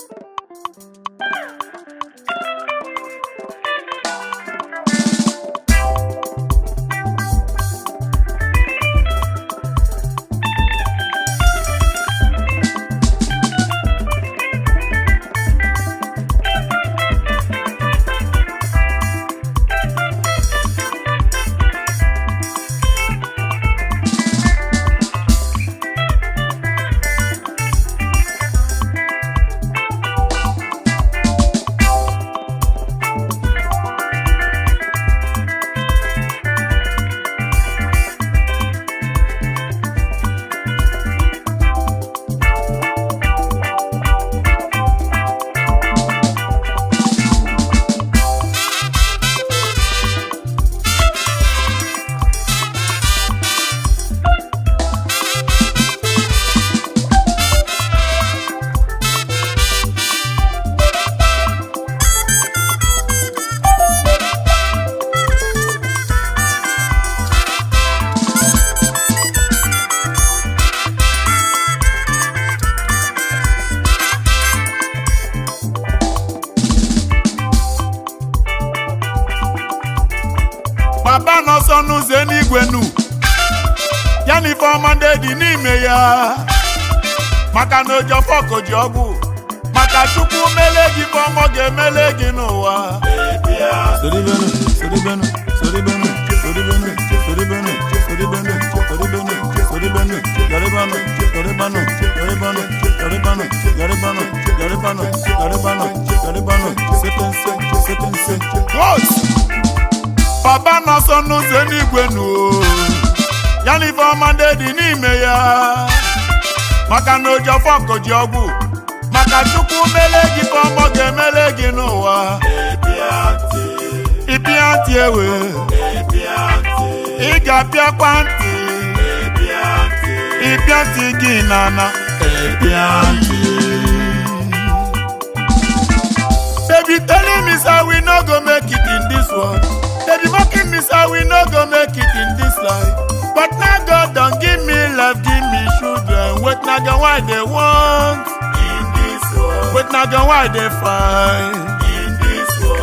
you Kenny for Monday di n'ime ya maka na ụjọ fọkụ ji ọgwụ maka chukwu mele gị bụ ọmọ ga-emele gị n'ụwa soribenu soribenu soribenu soribenu soribenu soribenu soribenu soribenu yoribanu yoribanu yoribanu yoribanu yoribanu yoribanu yoribanu yoribanu sepense sepense. Papa nọ sọ n'ụzọ n'igwe n'ụwa. ife ọma dị n'ime ya maka na Ojiofọr ji ọgwụ maka chukwu mele gị ọmọ ga-emele gị n'ụwa ịpịa ntị ewe ị ga-apịakwa ntị ịpịa ntị gị n'ana baby telling me say we no go make it in this world baby mocking me say we no go make it in make na girl why dey fine.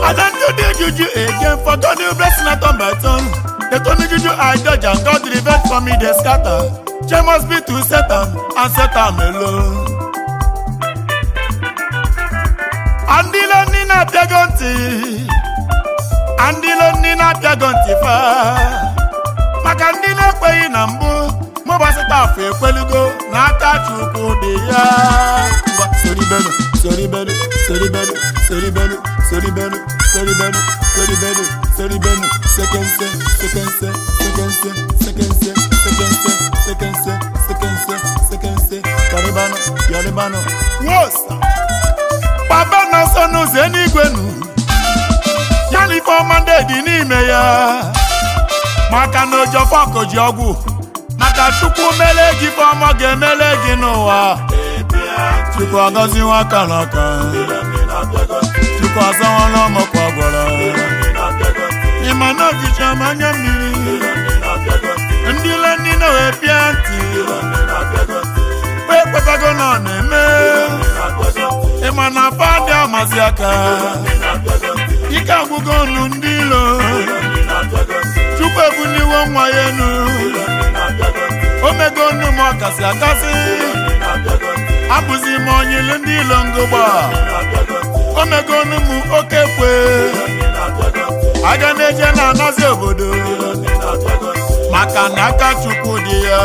I don't do the juju again for God new blessing I turn by turn. They told me juju I judge and God revenge for me dey scatter. Shey must be to set am and set am alone. Andilo nina apịago ntị Andilo nina apịago ntị fa maka ndị na-ekweghị na mbụ mụbasịta afọ ekwelugo na aka Chukwu dị ya soribenu soribanu soribanu soribanu soribanu soribanu soribanu soribanu sekense sekense sekense sekense sekense sekense sekense sekense papa ya na ifeọma ndị dị n'ime ya maka na ojofọkụ ji ọgwụ maka tupu mele gị ifeọma ga-emele gị n'ụwa tupu agọziwa nwa n'aka tupu azawala ọmọkwa gwara ịma na ọchịcha ma mmiri ndị ile ndị na wee pịa ntị kpe na ọ na-eme ịma na afọ adị amazi aka ike agwụgo ọnụ ndị ilo Chukwu ebuniwo nwa ya enu o mego ọnụ ọ kasị akasị abụzi m onye ilu ndị ilongogba omegonu m oke kwe aga na-eje na-anazi obodo maka na aka chukwu dị ya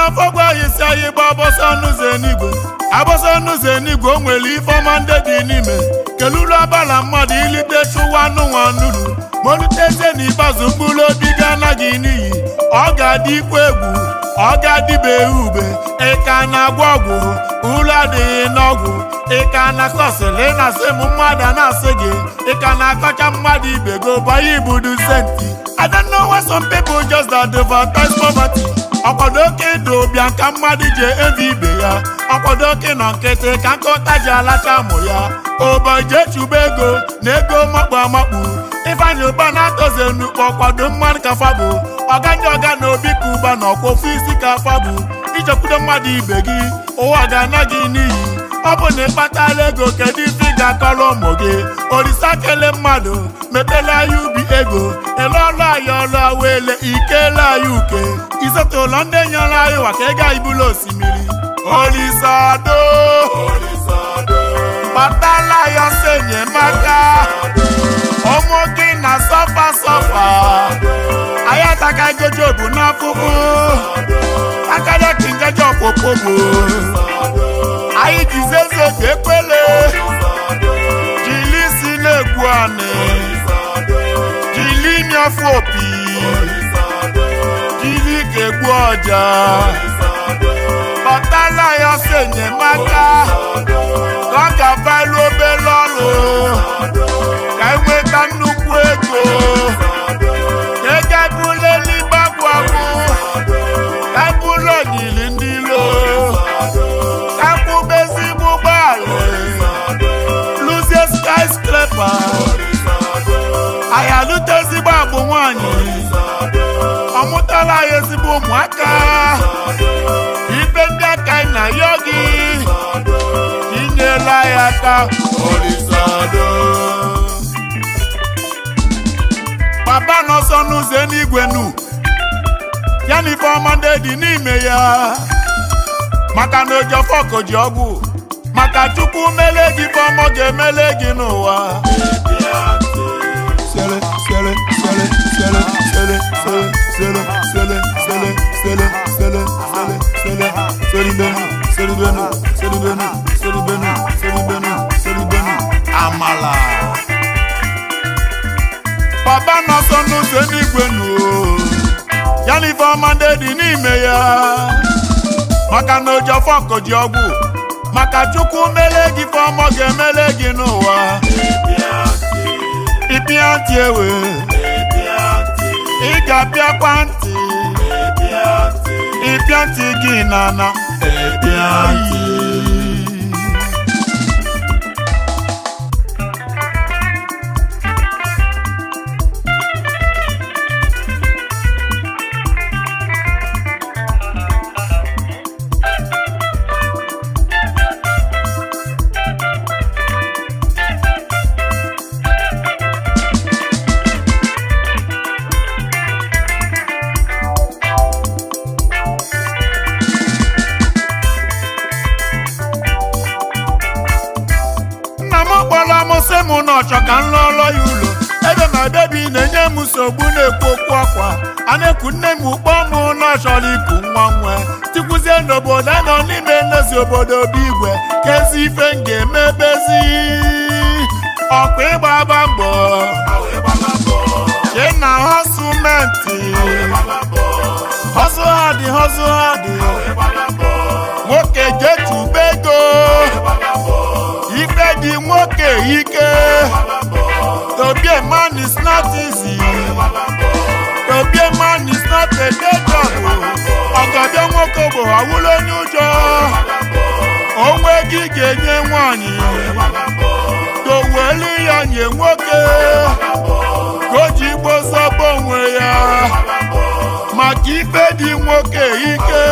n'afọ afọgwa anyị anyị gba agbọsọ n'ụzọ enigwe abọsọ n'ụzọ enigwe o nwere ifeọma ndị dị n'ime keluru abala mmadụ ilite chụwa n'ụwa nuru molite eze na ikpeazụ mkpụrụ obi gị anaghị n'iyi ọ ga-adị ikwu egwu ọ ga-adịbeghị ube ịka na-agwọ ọgwụ uru adịghị n'ọgwụ ịka na kọsịlị na-asị m mmadụ a na-asị gị ịka na-akọcha mmadụ ibe gị banye ibudu senti I don't know some people just advertise poverty ọkwado oke ịdụ ụbịa ka mmadụ ji evi ibe ya ọkwado oke na nkịtị ka nkụta ji alacha amụ ya ụbọjị echuba ego na ego makpu amakpu ifeanyị ụba na-atọzi enukpo ọkwado mmadụ ka fabụ ọganye ọga na obi ka ụba na ọkwa ofu isi ka fabụ ichekwudo mmadụ ibe gị ụwa ga-ana gị n'iyi ọ bụ na ịkpatala ego kedu ife ị ga-akọrọ ụmụ gị olisa kele mmadụ mepela ya ubi ego eleọlụ anyị ọlụ wele ikele anyị uke isote ụlọ ndị nyere anyị maka ego anyị bụla osimiri olisado kpatala ya ọsọ enyemaka ụmụ gị na sọfa sọfa anyị ataka gojobu n'afụfụ akarịa ka ngaji ọkpụkpụ bụ anyị jizeze jili si na jili imi jili ga-egbu ọja bụ ụmụaka ibe ndị aka anyị na-ayọ gị inyela ya aka papa n'ọsọ n'ụzọ n'igwe nu ya na ndị dị n'ime ya maka na ojofọko ji ọgwụ maka chukwu mele gị ifeọma ga-emele gị n'ụwa afọ ji ọgwụ maka Chukwu mele gị fọmọ ga-emele gị n'ụwa ịpịa ntị ewe ị ga-apịakwa ntị ịpịa ntị gị n'ana ọchọ ka m lụọlọ ya ụlọ ebe ma bebi na-enye m nsogbu na-ekwu okwu ọkwa a na ekwu nne m ụkpọ m na ọchọrọ iku nwa nwe tikwuzie n'obodo a nọ n'ime nlezi obodo obi igwe ka ezi ife m ga-eme bezi ịgba ịgbaba mbọ jee na họsụmentị họsụ ha dị họsụ ha dị ike to be a man is not easy to a man is not a nwoke bụ awụla onye ụjọ onwe gị ga-enye nwanyị dowelu ya nye nwoke ka o ji ya maka ife dị nwoke ike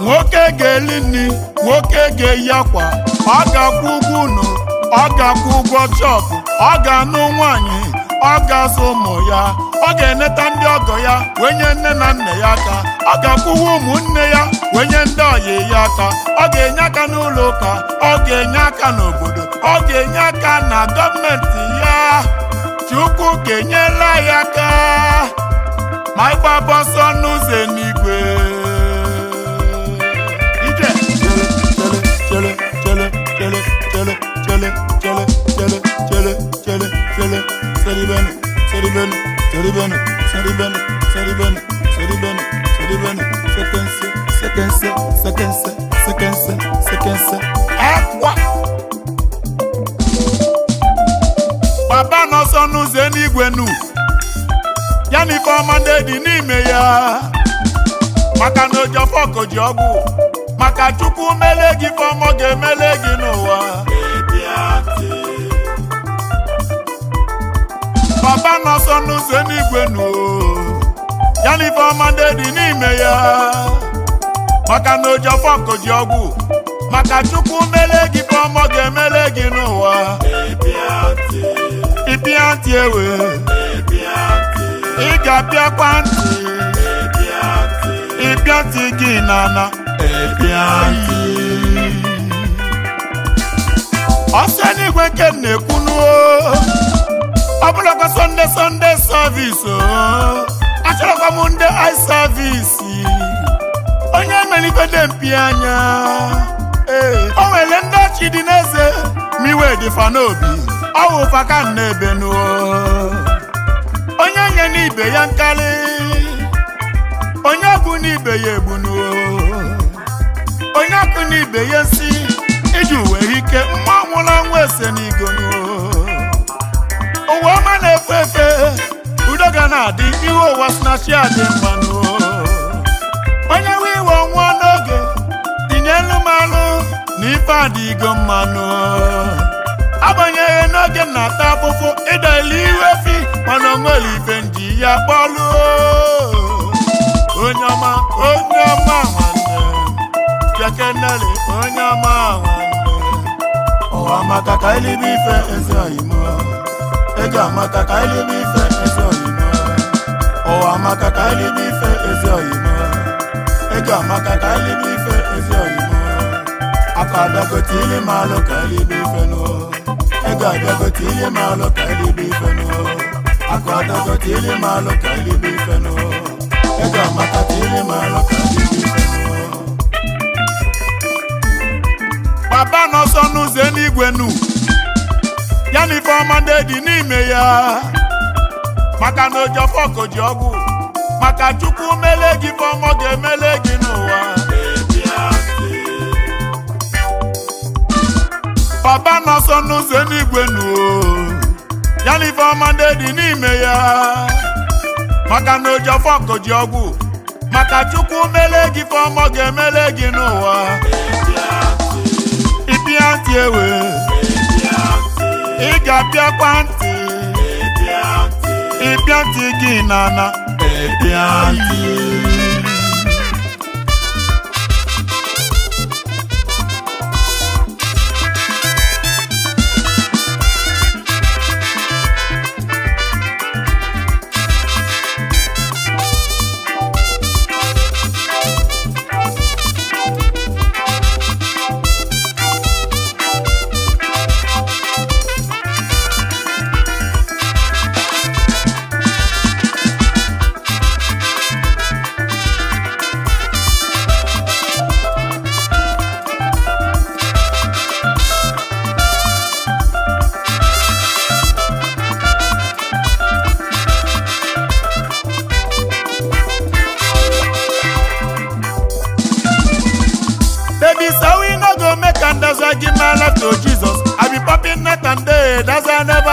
nwoke ga nri nwoke ọ ga-akwụ ụgwọ chọọkụ. ọ ga-anụ nwaanyị ọ ga-azụ ụmụ ya ọ ga-eneta ndị ọgọ ya wee nye nne na nna ya aka ọ ga-akwụwa ụmụnne ya wee nye ndị ọyị ya aka ọ ga-enye aka n'ụlọ ụka ọ ga-enye aka n'obodo ọ ga-enye aka na gọọmenti ya Chukwu ga-enyela ya aka ma ịgbaba ọsọ n'ụzọ n'igwe chere, chere, chere, chere, seri bene, seri bene, seri bene, seri bene, seri bene, seri bene, seri bene, sequence, sequence, sequence, sequence, Papa n'ọsọ n'ụzọ eluigwe nu, ya na dị n'ime ya, maka na ojọfọ ka ọgwụ, maka Chukwu mele gị Ifeọma ga-emele gị n'ụwa. baba n'ọsọ n'ụzọ n'igwe nu ya na ifeọma ndị dị n'ime ya maka na ojiọfọ ji ọgwụ maka chukwu mele gị ifeọma ga-emele gị n'ụwa ịpịa ntị ewe ị ga-apịakwa ntị ịpịa ntị gị n'ana ọsọ n'igwe nke na-ekwu n'o ọ bụlakwa sọnde sọnde sọvisi oh. achọrọkwa m ndị ai savisi onye emerigode mpi anya o nwere ndị ọchị dị n'eze miwe dị fa n'obi ọ wụ ebe onye nye n'ibe ya nkarị onye bụ n'ibe ya egbunuo onye akụ n'ibe ya si iji were ike mma nwụrụ ese ụwa ọma na-efe efe udo ga na-adị ihu ụwa snachi adị mmanụ onye nwe iwe ọnwụọ n'oge tinye elu mmanụ na ife adịgo mmanụ abanyeghị n'oge na-ata afụfụ ịdọile ihu efi mana onwere ife nji ya kpọlụ onye ọma onye ọma nwanne onye ọma nwanne ụwa maka ka elibe ife ezi oyimo ego amaka ka anyị lebe ife ezi oyibo. Ọwa amaka ka anyị lebe ife ezi oyibo. ego amaka ka anyị lebe ife ezi oyino akụ abịagote ihe maalụ ka anyị lebe ife nụ ego abịagote ihe maalụ ka anyị lebe ife nụ akụ abịagote ihe maalụ ka anyị lebe ife nụ ego amaka ka ihe maalụ ka anyị lebe ife nụ baba n'ọsọ n'ụzọ ya na Ifeọma ndị dị n'ime ya maka na ojọfọ koji ọgwụ maka Chukwu mele gị Ifeọma ga-emele gị n'ụwa papa nọ ọsọ n'ụzọ n'igwe nuo ya na Ifeọma ndị dị n'ime ya maka na ojọfọ koji ọgwụ maka Chukwu mele gị Ifeọma ga-emele gị n'ụwa ịpịa ntị ewe ị ga-abịakwa ntị ị bịa ntị ị bịa ntị gị na-ana ị bịa ntị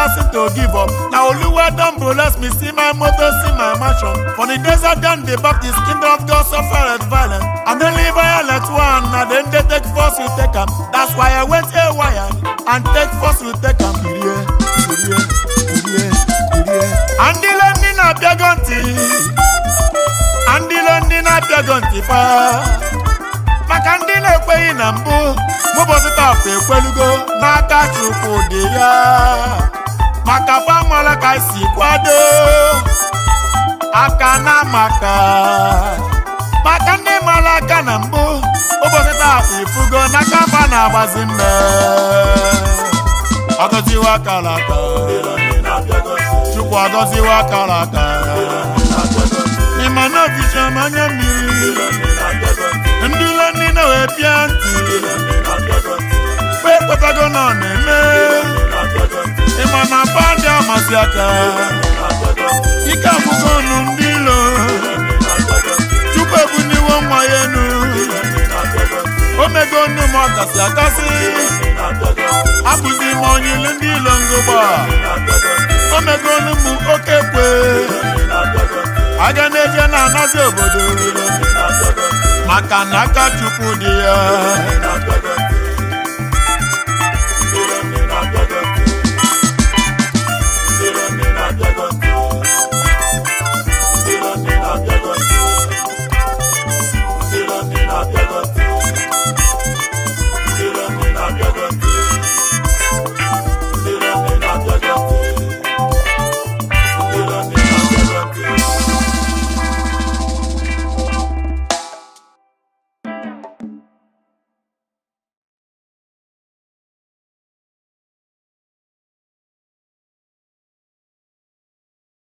person to give up. Now Oluwa don bless me, see my mother, see my mansion. For the desert and the Baptist, kingdom of God suffered violence. And the live violent one, Now then they take force to take them. That's why I went haywire and take force to take them. Irie, irie, irie, irie. And the land in gunty. And the land in gunty. pa. Maka ndị na-ekweghị na mbụ, mụbọsị taa ekwelụgo n'aka Chukwu dị ya. maka pamala ka si kwado aka na maka maka ndị mara aka na mbụ ụbọchị taa ifugo n'aka mba na-agbazi mme agọziwa akara aka chukwu agọziwa akara aka ịma na anya mmiri ndị ụlọ ndị na-ewepịa ntị kwe ekwetago na ọ na-eme mana bandị amasị aka ike akwụkwọ ọnụ ndị ilo chukwu ebuniwo nwa ya enu omego nnu m ọkasị akasị abụzi m onye ilu ndị ilo ngụgba omego nnu m oke kwe aga na-eje na-anazi obodo maka na aka chukwu dị ya